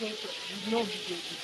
дети, днем дети.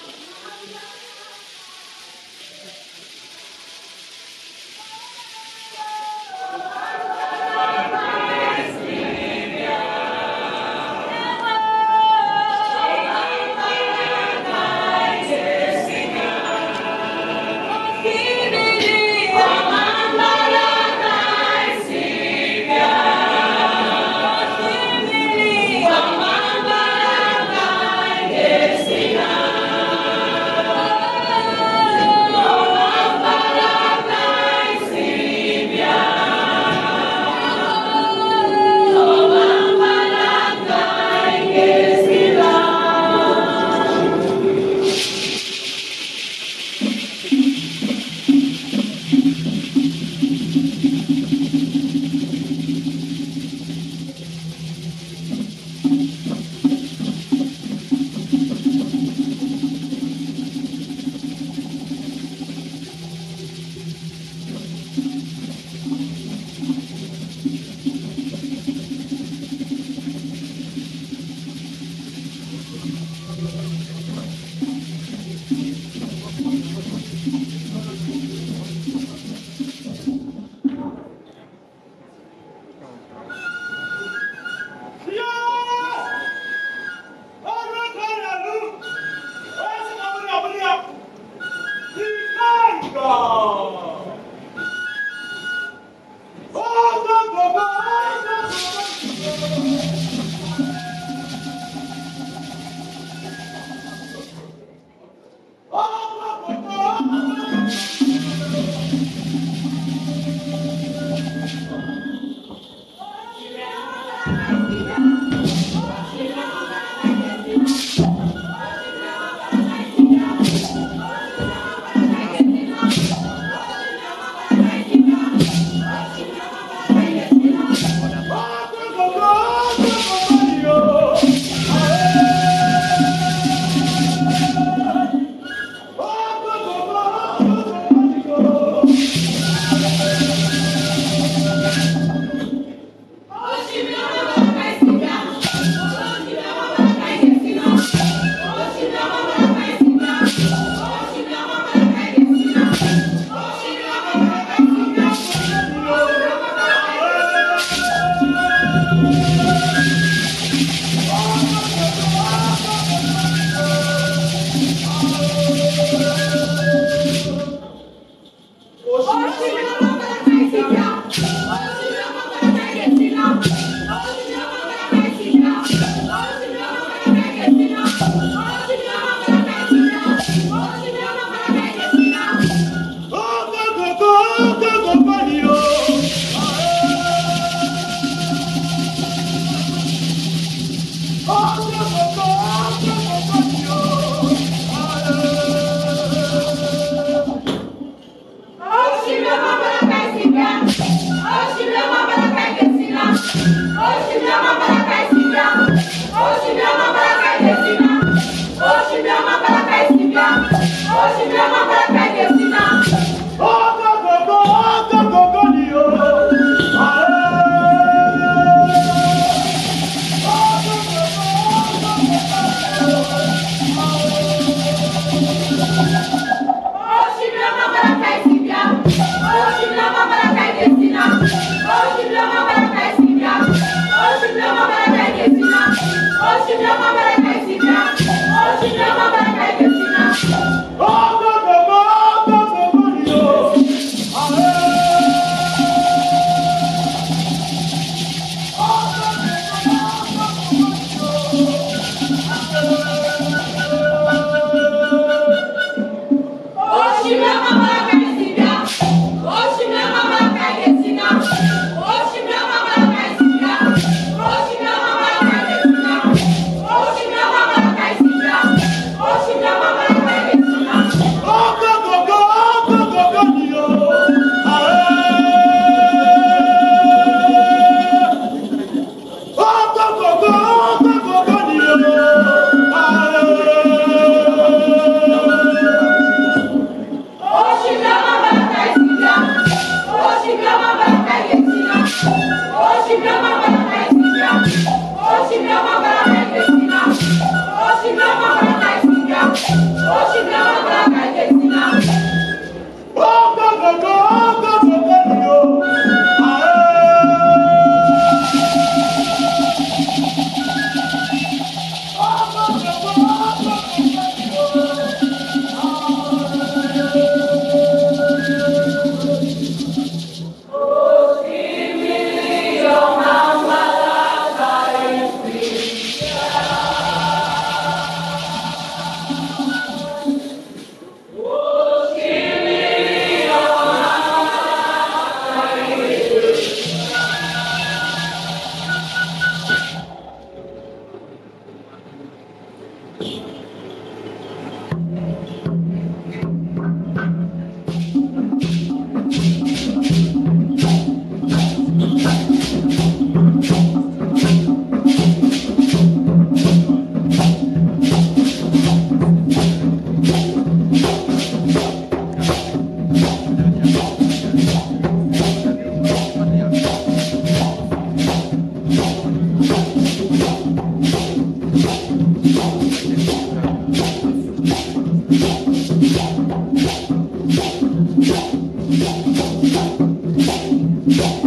I'm Thank you.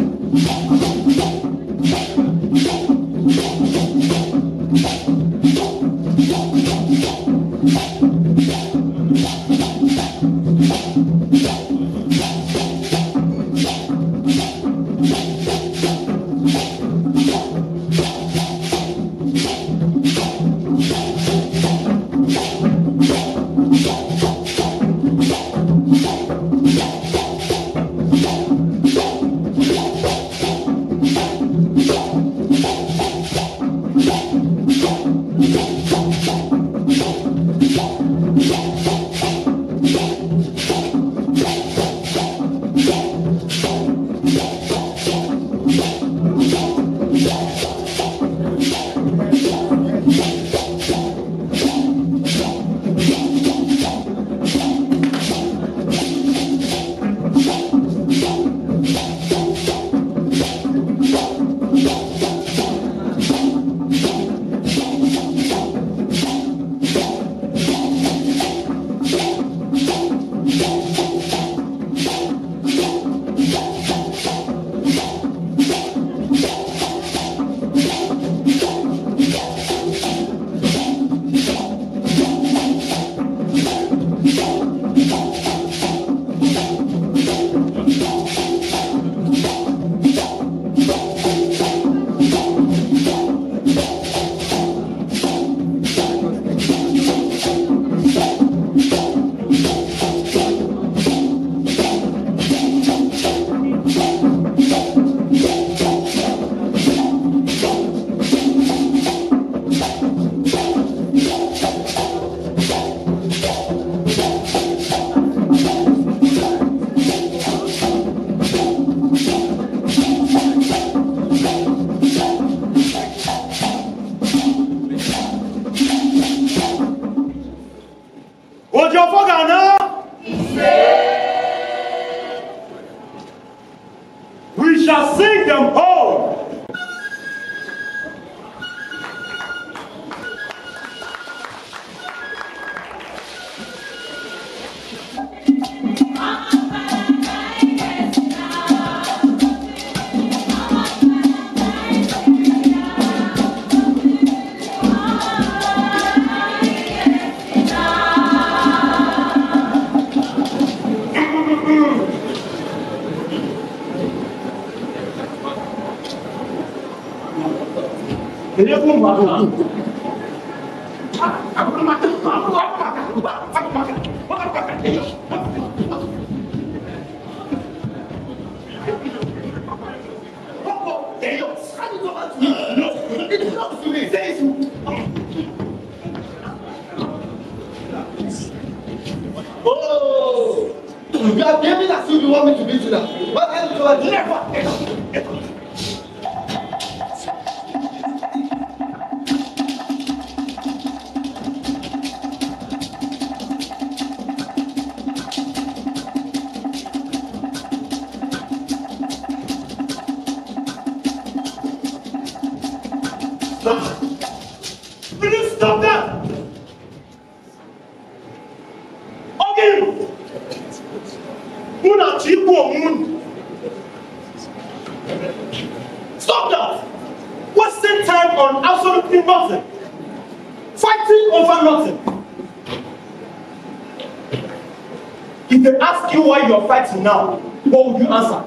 now, what would you answer?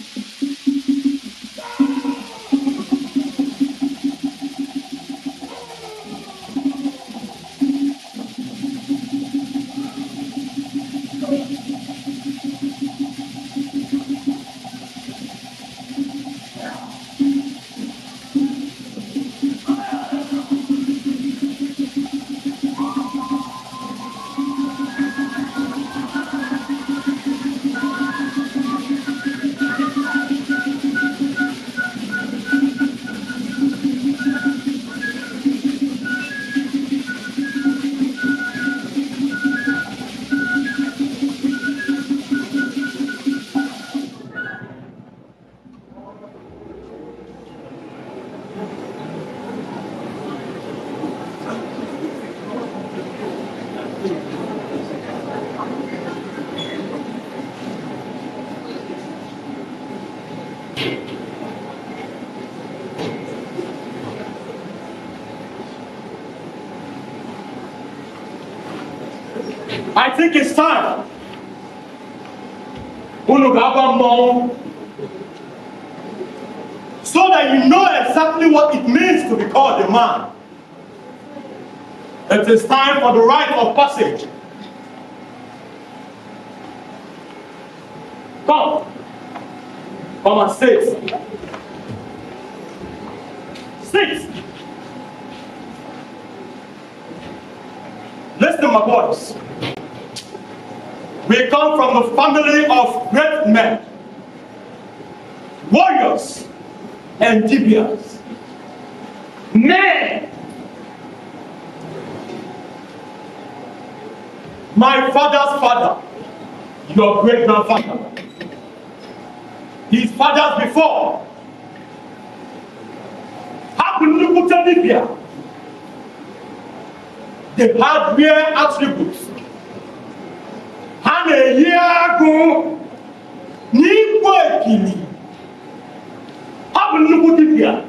I think it's time. So that you know exactly what it means to be called a man. It is time for the rite of passage. Come. Come and sit. your great grandfather, his fathers before. How could you put Libya? They had rare attributes. And a year ago, Nipo Ekini, how could you put Libya?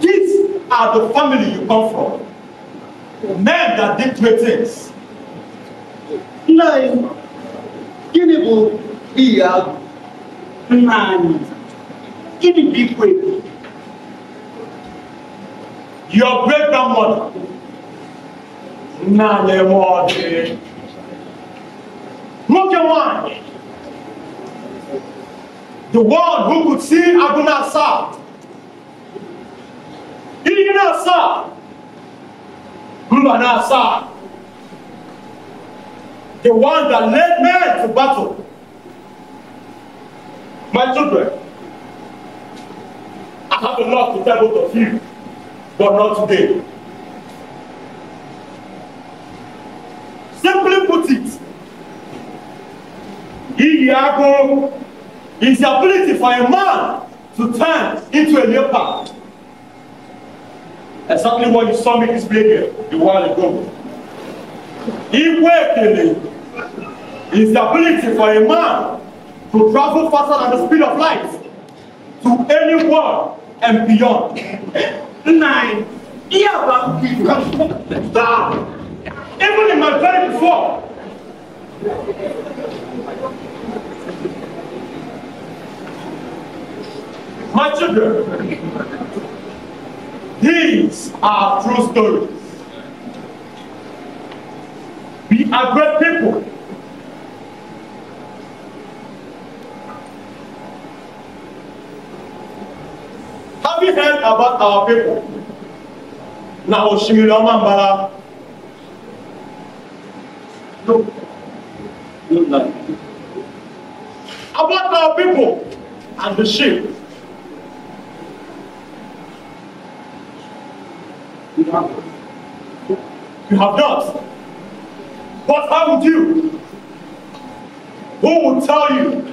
These are the family you come from. Men that did great things. Nay, gịnị bụ iyi ahụ? Nna anyị, gịnị bụ ikwe? Your great grandmother. Nna anyị enwe ọdị. Nwoke nwanyị. The one who could see Aguna Asa. Iyi na-asa. Mba na-asa the one that led men to battle. My children, I have a lot to tell both of you, but not today. Simply put it, Iyago is the ability for a man to turn into a leopard. Exactly what you saw me display here a while ago. Igwe Ekele is the ability for a man to travel faster than the speed of light to any world and beyond. Nine. Yeah, down. Even in my very before. My children, these are true stories. We are great people. Have you heard about our people? Now, osimiri ọma mbara no no about our people and the sheep you have not What up with you? Who will tell you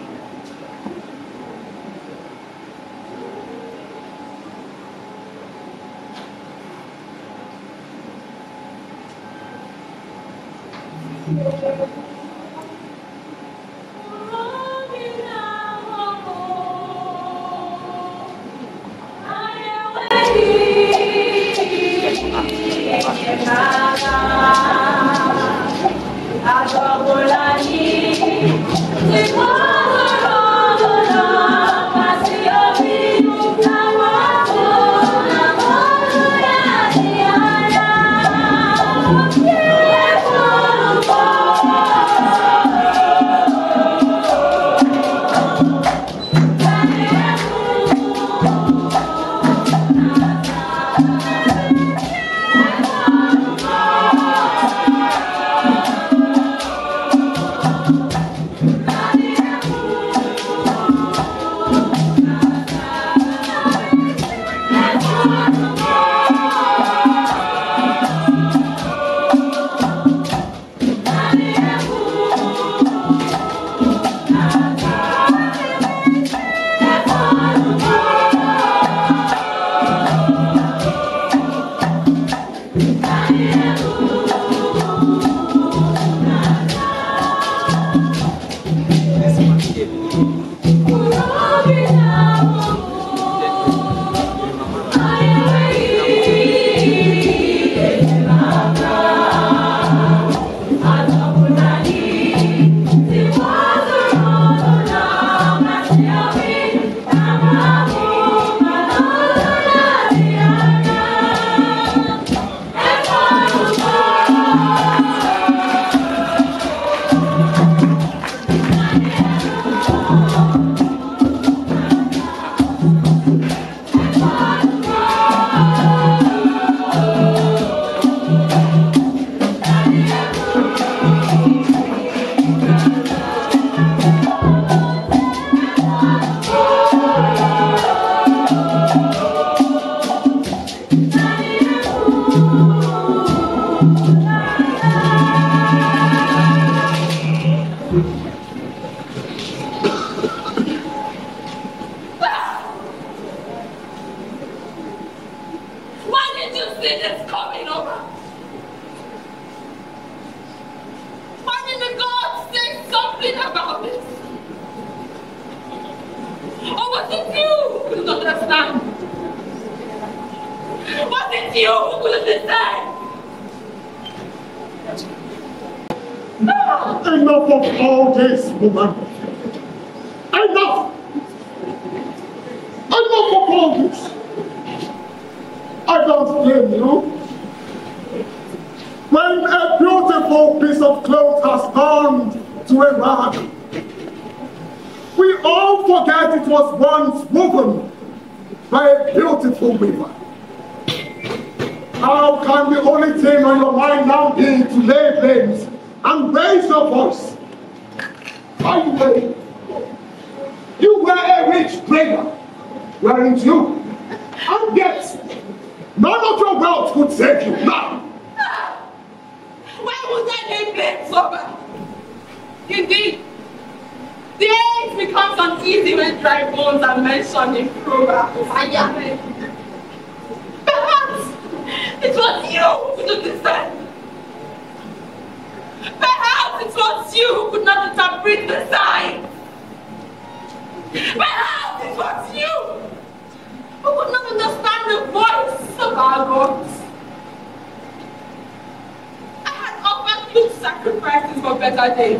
better days.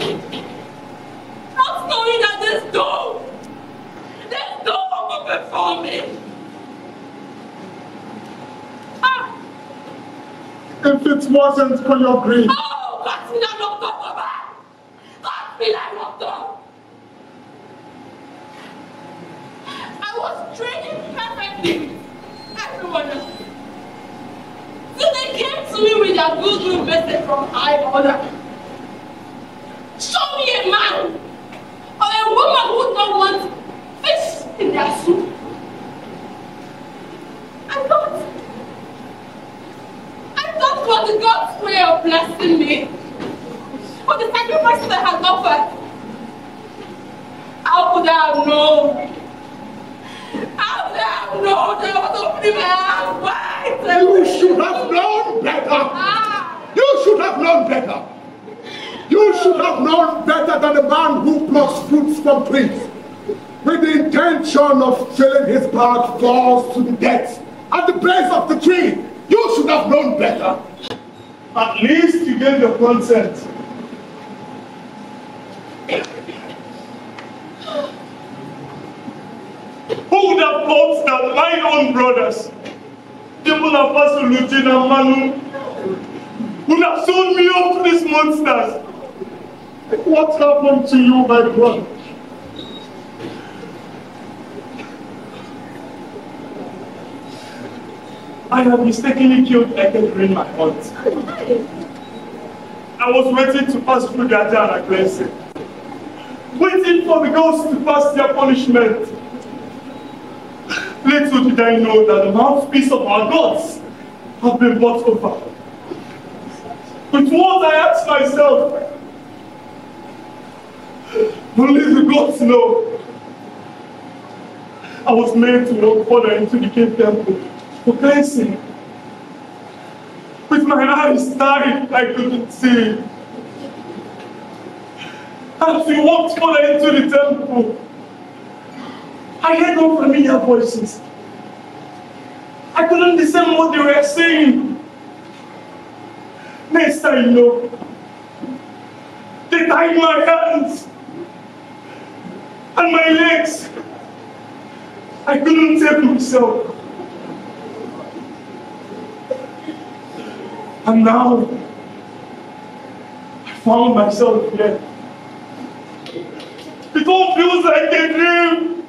Not knowing that this door, this door open for me. Ah. If it wasn't for your grace. Oh, that's not no problem. That's me like no problem. I was training perfectly. Everyone else. So they came to me with their good message from high order a man or a woman who don't want fish in their soup. I thought, I thought not want God's way of blessing me. For the sacrifices I had offered. How could I have known? How could I have known that I was opening my eyes wide? You should have known better. Ah. You should have known better. You should have known better than the man who plucks fruits from trees with the intention of filling his bag falls to the death at the base of the tree. You should have known better. At least you gave your consent. Who would have thought that my own brothers, people of Pastor Lutin and Manu, would have sold me off to these monsters? What happened to you, my brother? I have mistakenly killed Eke during my hunt. I was waiting to pass through their and I cleansed Waiting for the ghosts to pass their punishment. Little did I know that the mouthpiece of our gods have been bought over. But what I asked myself Only the gods know. I was made to walk further into the cave temple for cleansing. With my eyes tied, I couldn't see. As we walked further into the temple, I heard unfamiliar voices. I couldn't discern what they were saying. Next I know, they tied my hands and my legs. I couldn't save myself. And now I found myself here. It all feels like a dream.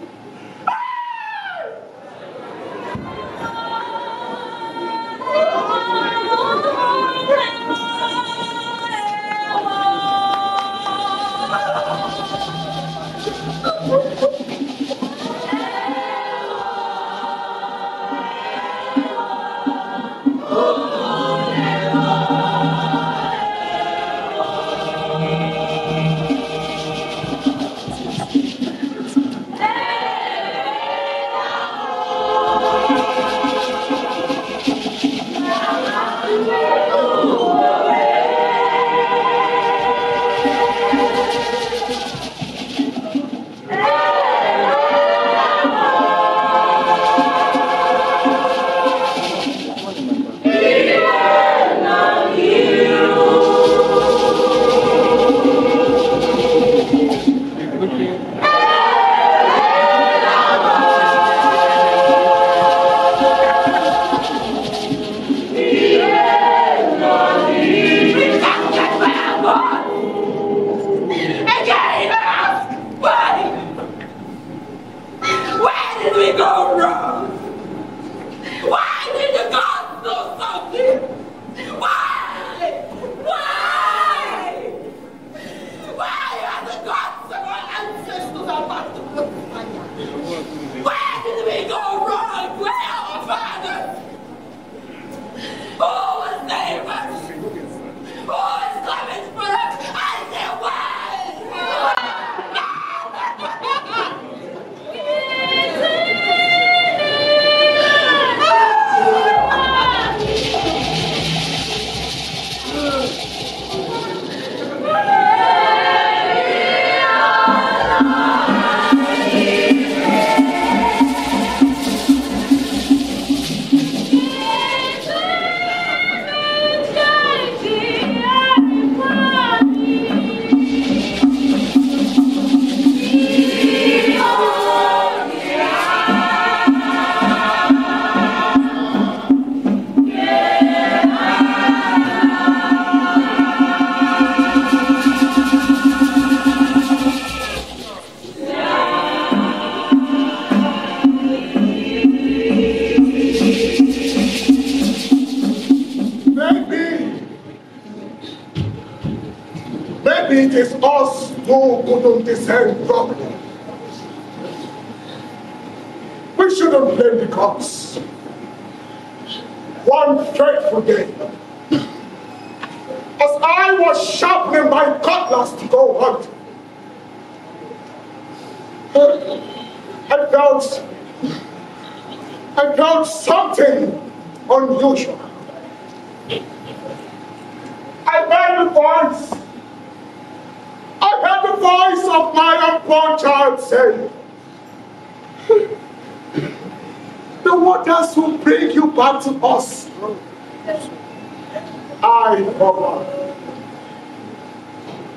I am.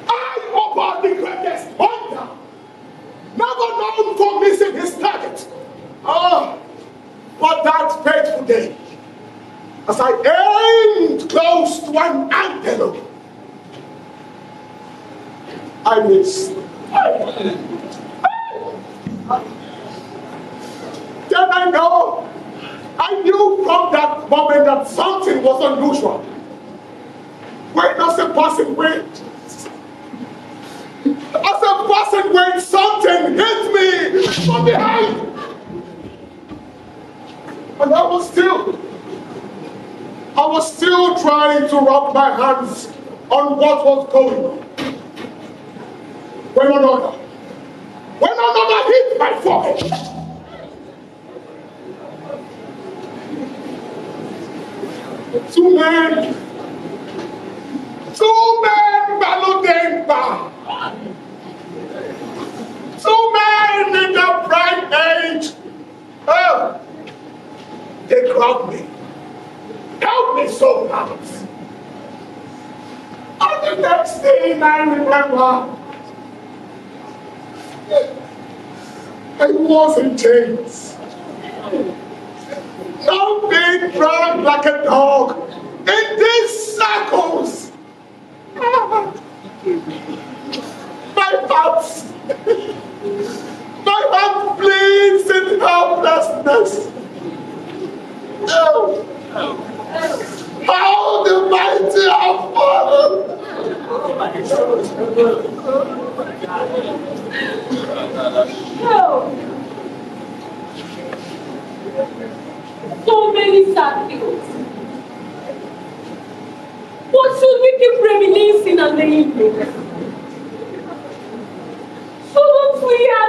I hover the greatest hunter. Never known for missing his target. Ah, but that fateful day, as I aimed close to an antelope, I missed. Then I know I knew from that moment that something was unusual. When does a person wait? As a person when something hit me from behind. And I was still, I was still trying to wrap my hands on what was going on. When another, when another hit my forehead. two men two men Baludemba. Two men in the bright age. Oh, they grabbed me. Help me so much. And the next thing I remember, I was in chains. Now being dragged like a dog in these circles. My heart, my heart bleeds in helplessness. Oh, how the mighty have fallen. Oh so many sad things. What should we keep reminiscing on the evening? So not we have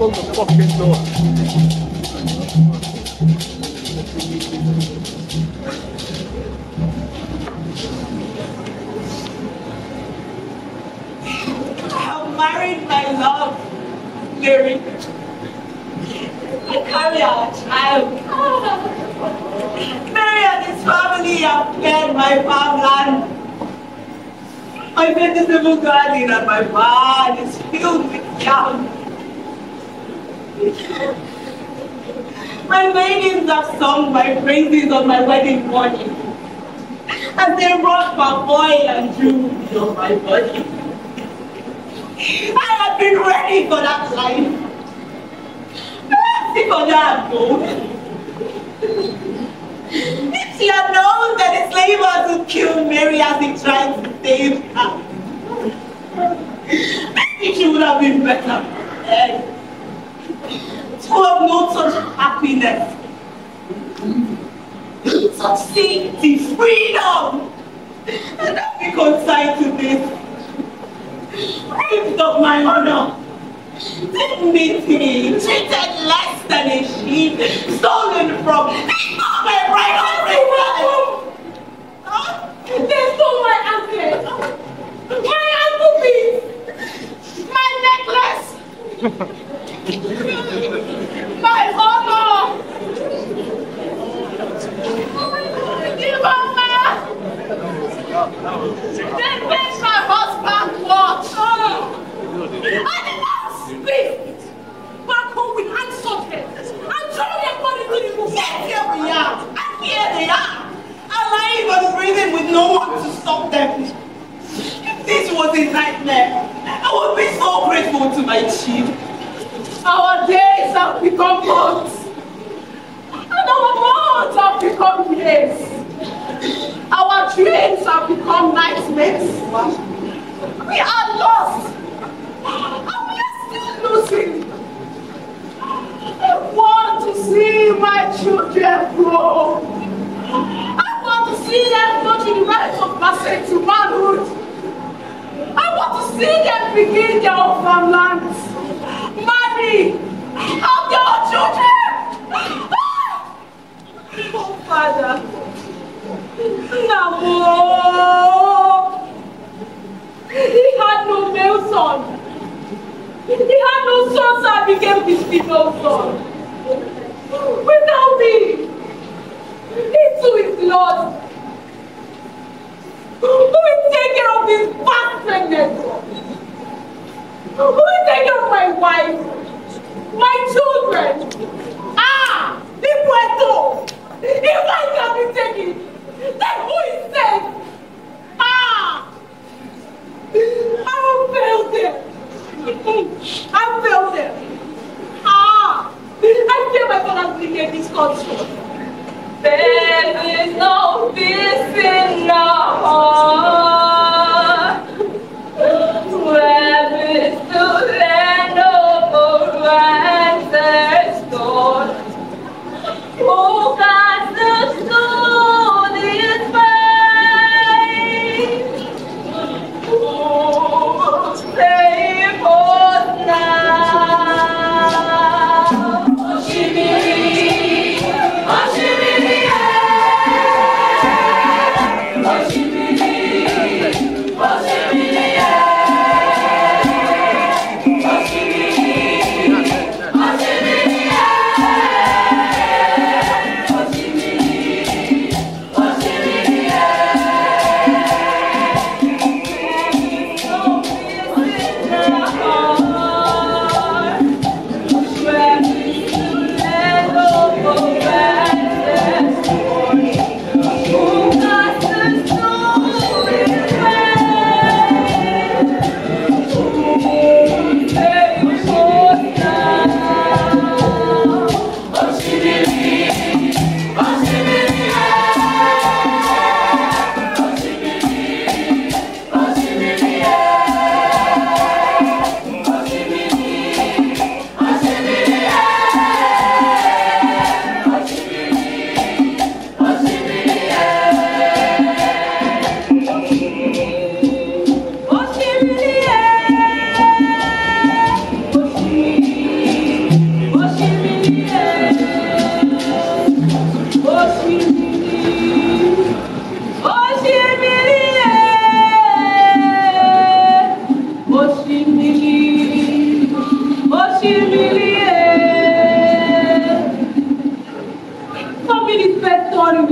close the fucking door. I'm married, my love, Mary. I carry our child. Mary and his family have cleared my farmland. My vegetable garden and my barn is filled with yams my maidens have sung my praises on my wedding morning, as they rock my boy and jewels on my body. I have been ready for that life. Mercy for that gold. If she had known that the slavers would kill Mary as he tried to save her, maybe she would have been better who have notes such happiness. Such the freedom and I we consign to this. Raved of my honor. Dignity, treated less than a sheep, stolen from, it's not my right of They stole my anklet. My ankle, please. My necklace. My mama! Dear mama! They made my husband walk! I did not speak! Back home with hands sorted! I'm telling everybody to move! Yes, here we are! And here they are! Alive and breathing with no one to stop them! this was a nightmare, I would be so grateful to my chief. Our days have become months. And our months have become years. Our dreams have become nightmares. We are lost. And we are still losing. I want to see my children grow. I want to see them go to the right of passage to manhood. I want to see them begin their own farmlands. me! I'm your children! Oh, Father! Nabo! He had no male son. He had no son, so I became his female son. Without me, he too is lost. Who will take care of this past pregnancy? Who is taking my wife? My children? Ah! The Puerto! If I can be taken, take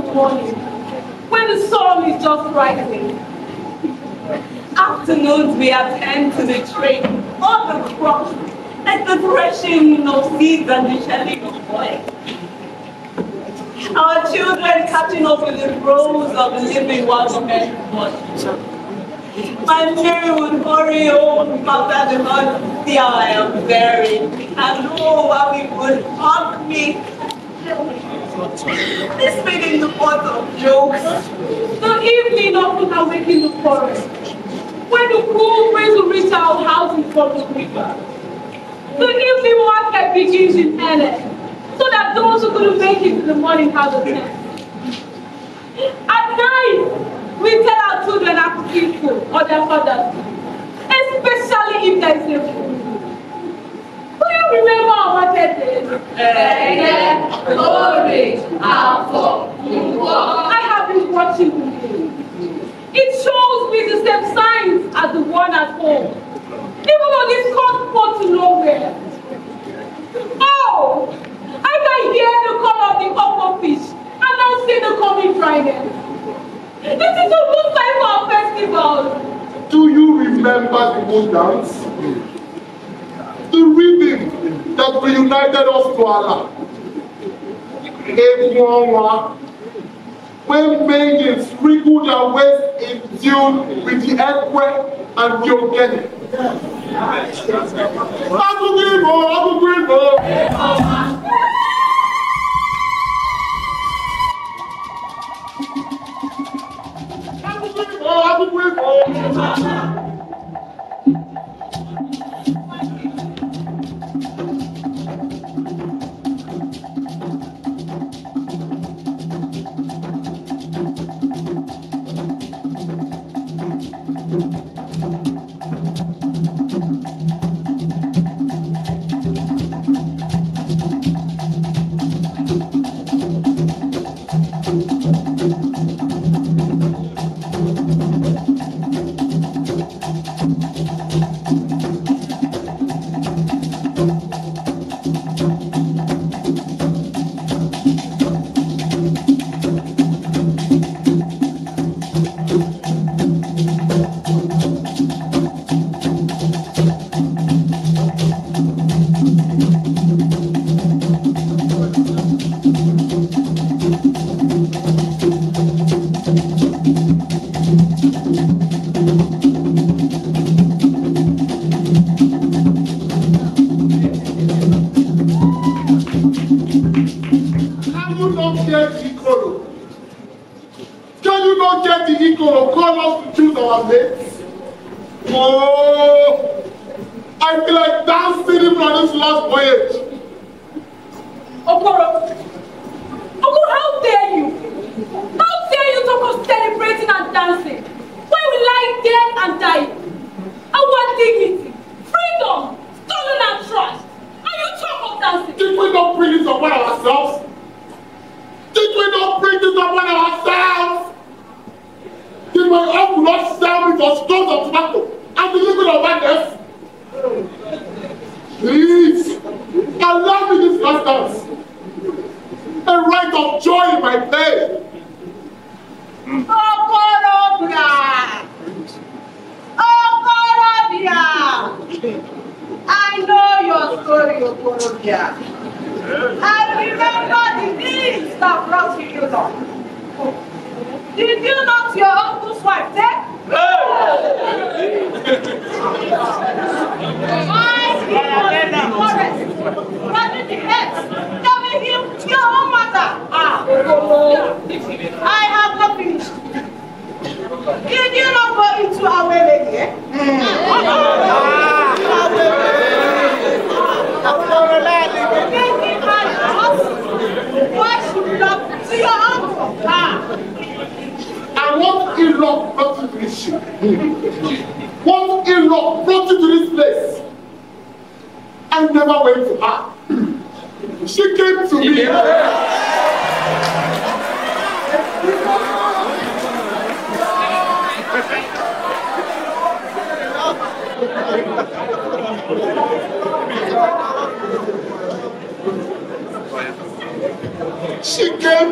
morning when the sun is just rising. Afternoons we attend to the trade all the crops and the threshing of seeds and the shelling of oil. Our children catching up with the rows of the living ones of men. My Mary would hurry home oh, after the mother. I am buried, and oh, how it would haunt me. This made in the pot of jokes. The evening often awake in the forest, when the cool breeze will reach our houses from the river. The evening market begins in earnest, so that those who couldn't make it to the morning have a chance. At night, we tell our children keep people or their fathers especially if there is a fool. Do you remember our birthday? Ẹ̀yẹ, glory, àfọ̀, ìwọ. I have been watching you. It shows me the same signs as the one at home. Even on this cold port to nowhere. Oh, I can hear the call of the upper fish and now see the coming dryness. This is almost like our festival. Do you remember the good dance? The rhythm that reunited us to Allah. Egunwa, when maidens wriggled their waist in tune with the earthquake and Yogeni. Agungibo, Agungibo. trouble with. She came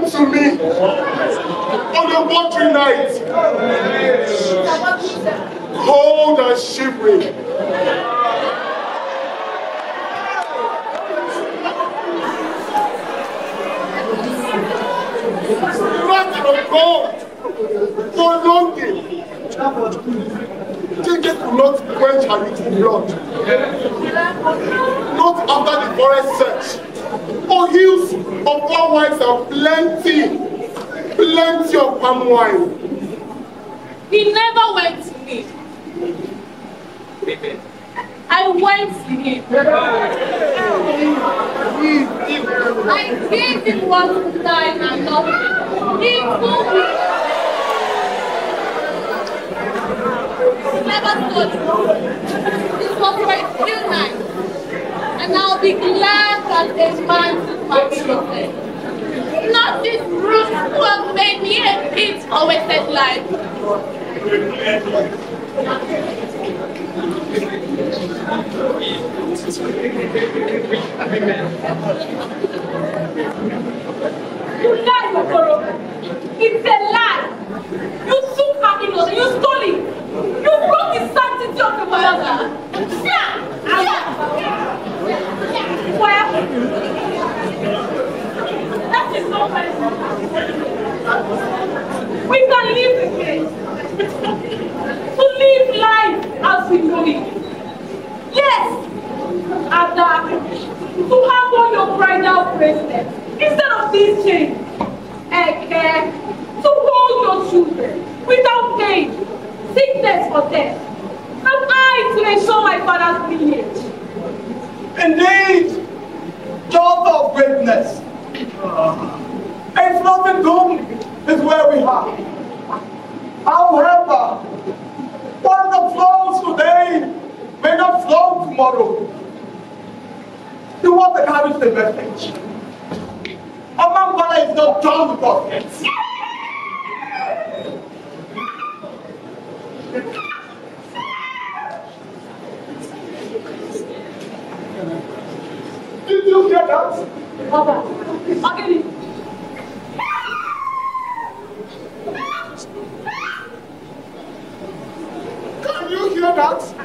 to me on a watery night, cold and shivering. go so longing Chinke could not quench her with blood not after the forest search on hills of all wives and plenty plenty of palm wine. He never went to me. I went to him. I gave him one to and love Thank you. And I'll be glad that man Not this brute who made me a pit of life. Amen. You lied, Okoro. It's a lie. You took her innocence. You stole it. You broke the sanctity of the mother. Yeah. Yeah. Yeah. Well, that is not personal. We can live the it. to live life as we know it. Yes. Ada, to have all your bridal bracelet. instead of teaching and care to hold your children without pain, sickness or death. Am I to ensure my father's lineage? Indeed, daughter of greatness. A floating doom is where we are. However, what the flows today may not flow tomorrow. Do want to carry the message is not done with us yet. Did you hear that? Papa, okay. Can you hear that?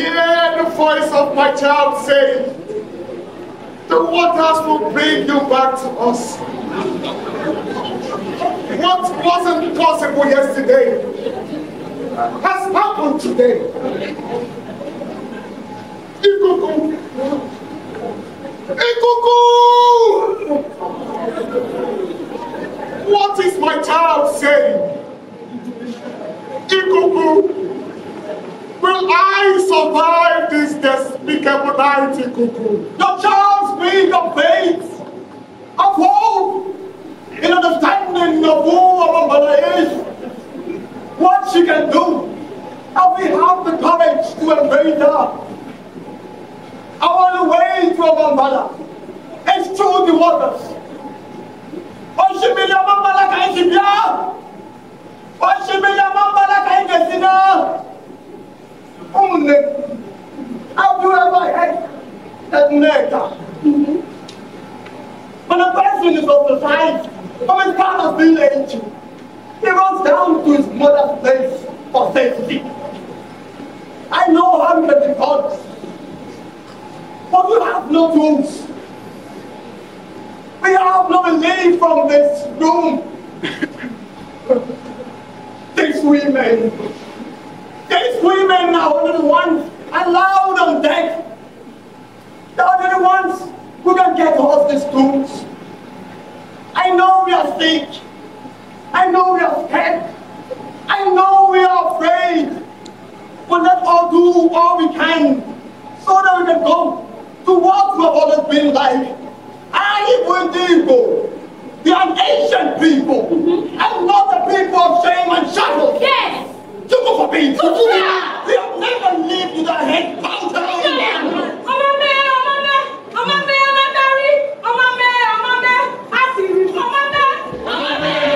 hear the voice of my child saying, the waters will bring you back to us. What wasn't possible yesterday has happened today. Ikuku! Ikuku! What is my child saying? Ikuku! Will I survive this despicable night, cuckoo? Your charms be the faith of hope in understanding of who our mother is, what she can do, and we have the courage to embrace her. Our way to our mother is through the waters. Oshimilia mama la kaisimia. Oshimilia mama la kaidesina. Only the neck. Have you ever heard that nigger? Mm -hmm. When a person is of the size from his father's village, he runs down to his mother's place for safety. I know can be gods, but you have no tools. We have no relief from this doom. These women these women are only the ones allowed on deck. They are the ones who can get these tombs. I know we are sick. I know we are scared. I know we are afraid. But let's all do all we can so that we can go to what we have always been like. I will people. We are ancient people mm-hmm. and not the people of shame and shackles. Yes. go for being. Jókòó for We have never lived with our head bowed down. Ọmọ mẹ́, ọmọ mẹ́, ọmọ mẹ́, ọmọ mẹ́ rí, ọmọ mẹ́, ọmọ mẹ́, a sì rí ọmọ mẹ́. Ọmọ mẹ́.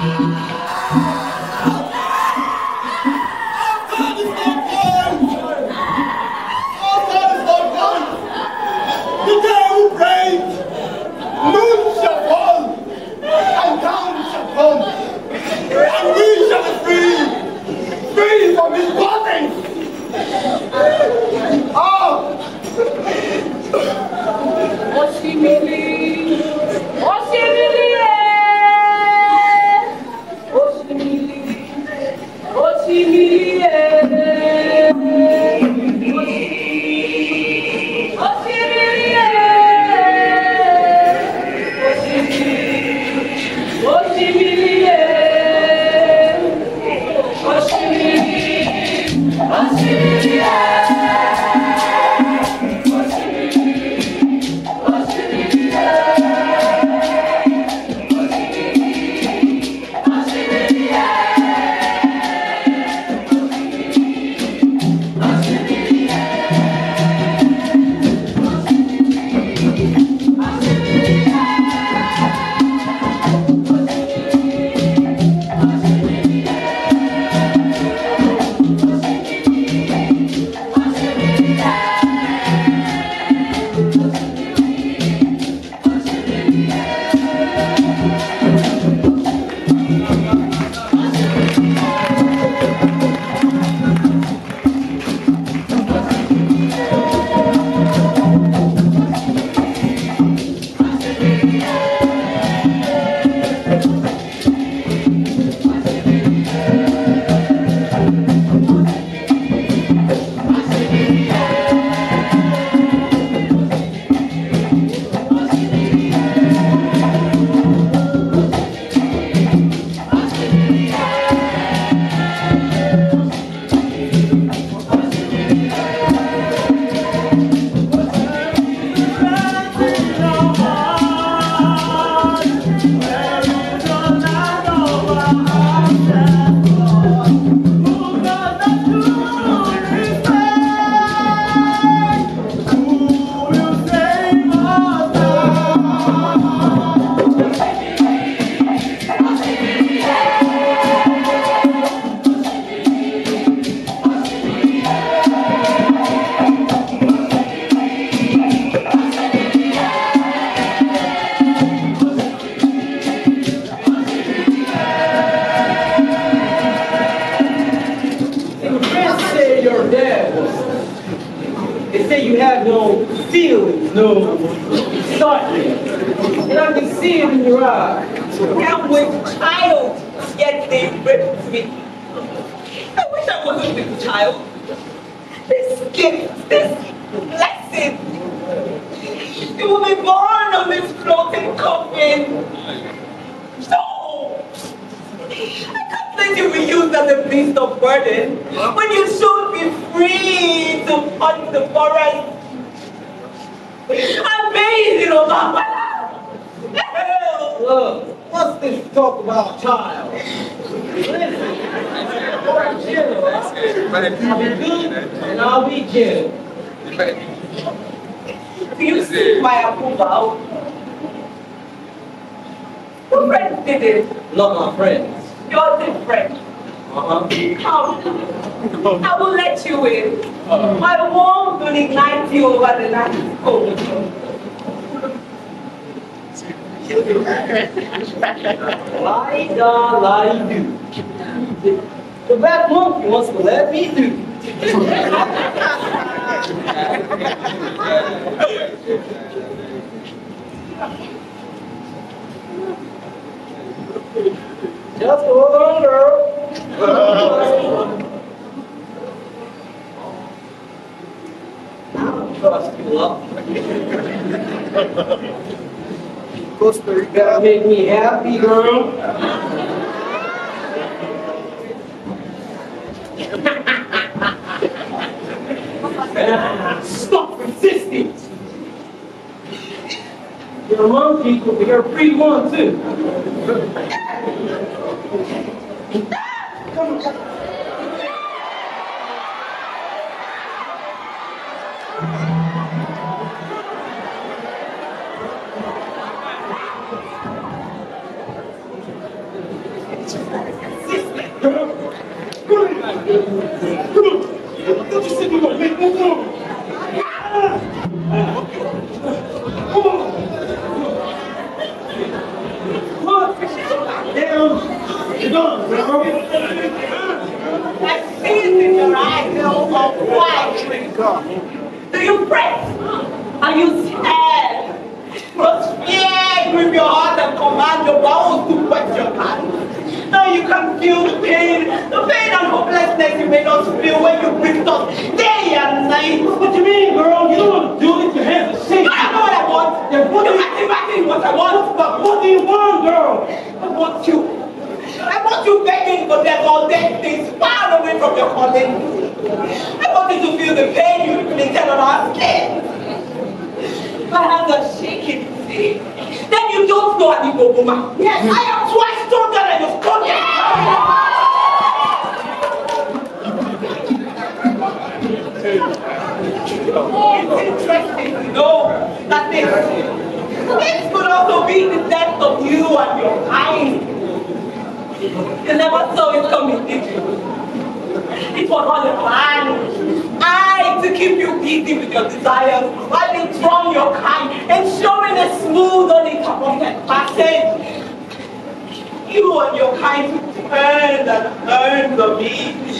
Amen. Hold on, girl. Costa Rica gotta make me happy, girl. Stop resisting! Your monkey, people, you're free one too. Don't you sit there make Come on. Put down gun, I see it in your eyes, Bill. Why? Now you can feel the pain, the pain and hopelessness you made us feel when you gripped us day and night. What do you mean, girl? You don't do it to him. I know what I want. Then put it back in what I want. But what do you want, girl? I want you I want you begging for them all dead things far away from your calling. I want you to feel the pain you been on our skin. My hands are shaking. Then you don't know an Igbo woman. Yes, I am twice stronger than your stronger. Yes! oh, it's interesting to know that this, this could also be the death of you and your kind. You never saw it coming, did you? It was all a plan. I to keep you busy with your desires while they drown your kind and Nobody can perfect percent. You and your kind earn and earn the meat.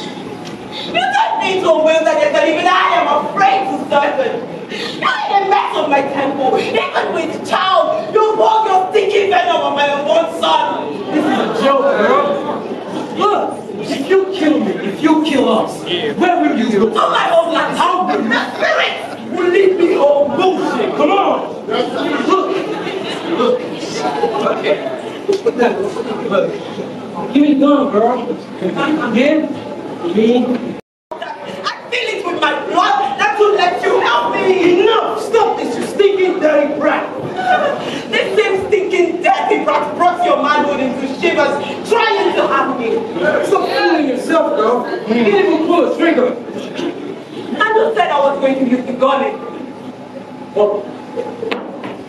You don't need to will that you even I am afraid to serve it. I am a mess of my temple. Even with child, you walk your thinking venom on my own son. This is a joke, girl. Look. If you kill me, if you kill us, yeah. where will you go? To my land, How will the spirit will lead me home? Bullshit. Come on. Look, look. Give me the gun, girl. Give me. I feel it with my blood. not to let you help me. Enough. Stop this, you stinking, dirty brat. this same stinking, dirty brat brought your manhood into shivers, trying to harm me. Stop fooling yourself, girl. You hmm. didn't even pull a trigger. I just said I was going to use the gun. Well,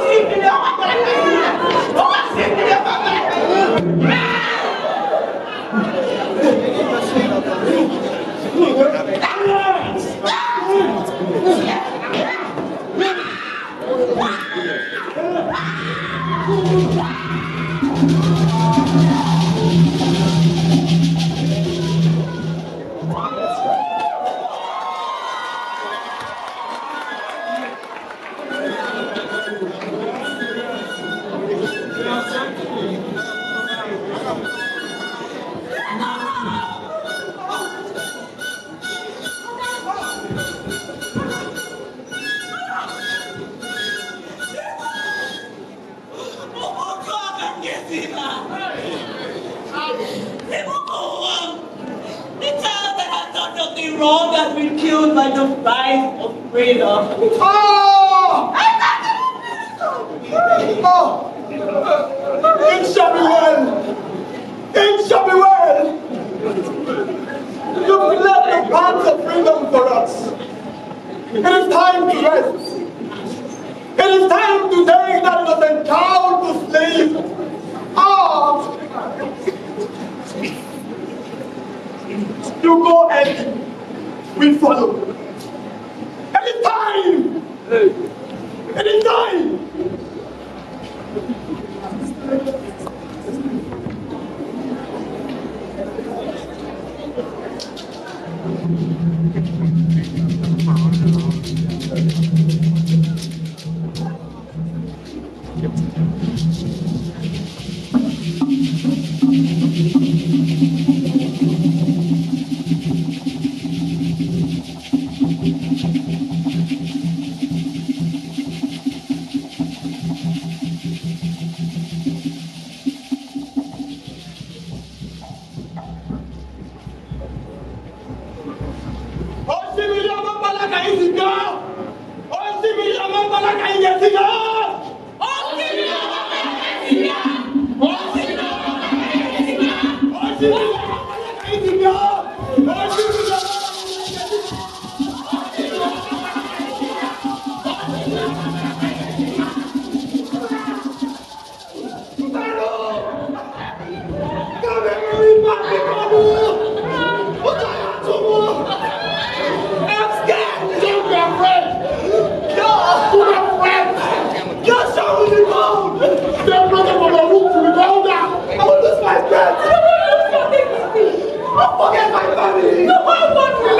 assim que deu uma Maracanã? Como assim que deu uma Maracanã? Ah! breathe up. Oh! Don't forget my family. No, my family.